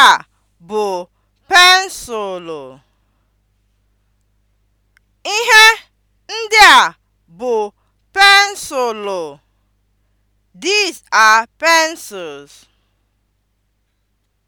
Nke a bụ pensụlụ. Ihe ndị a bụ pensụlụ. These are pencils.